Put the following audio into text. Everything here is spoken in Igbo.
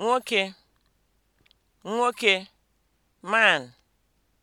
nwoke nwoke man